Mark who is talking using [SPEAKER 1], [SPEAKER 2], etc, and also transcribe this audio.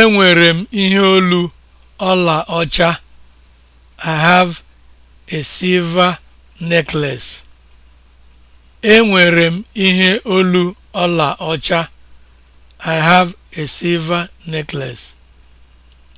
[SPEAKER 1] Enwere m ihe olu ọla ọcha. I have a silver necklace. ihe olu ọla ọcha. I have a silver
[SPEAKER 2] necklace.